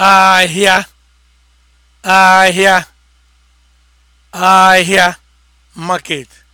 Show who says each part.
Speaker 1: ahịa ahịa ahịa market